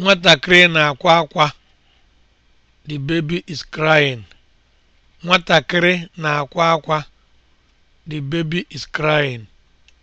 nwatakịrị na-akwa akwa the baby is crying na-akwa akwa the baby is crying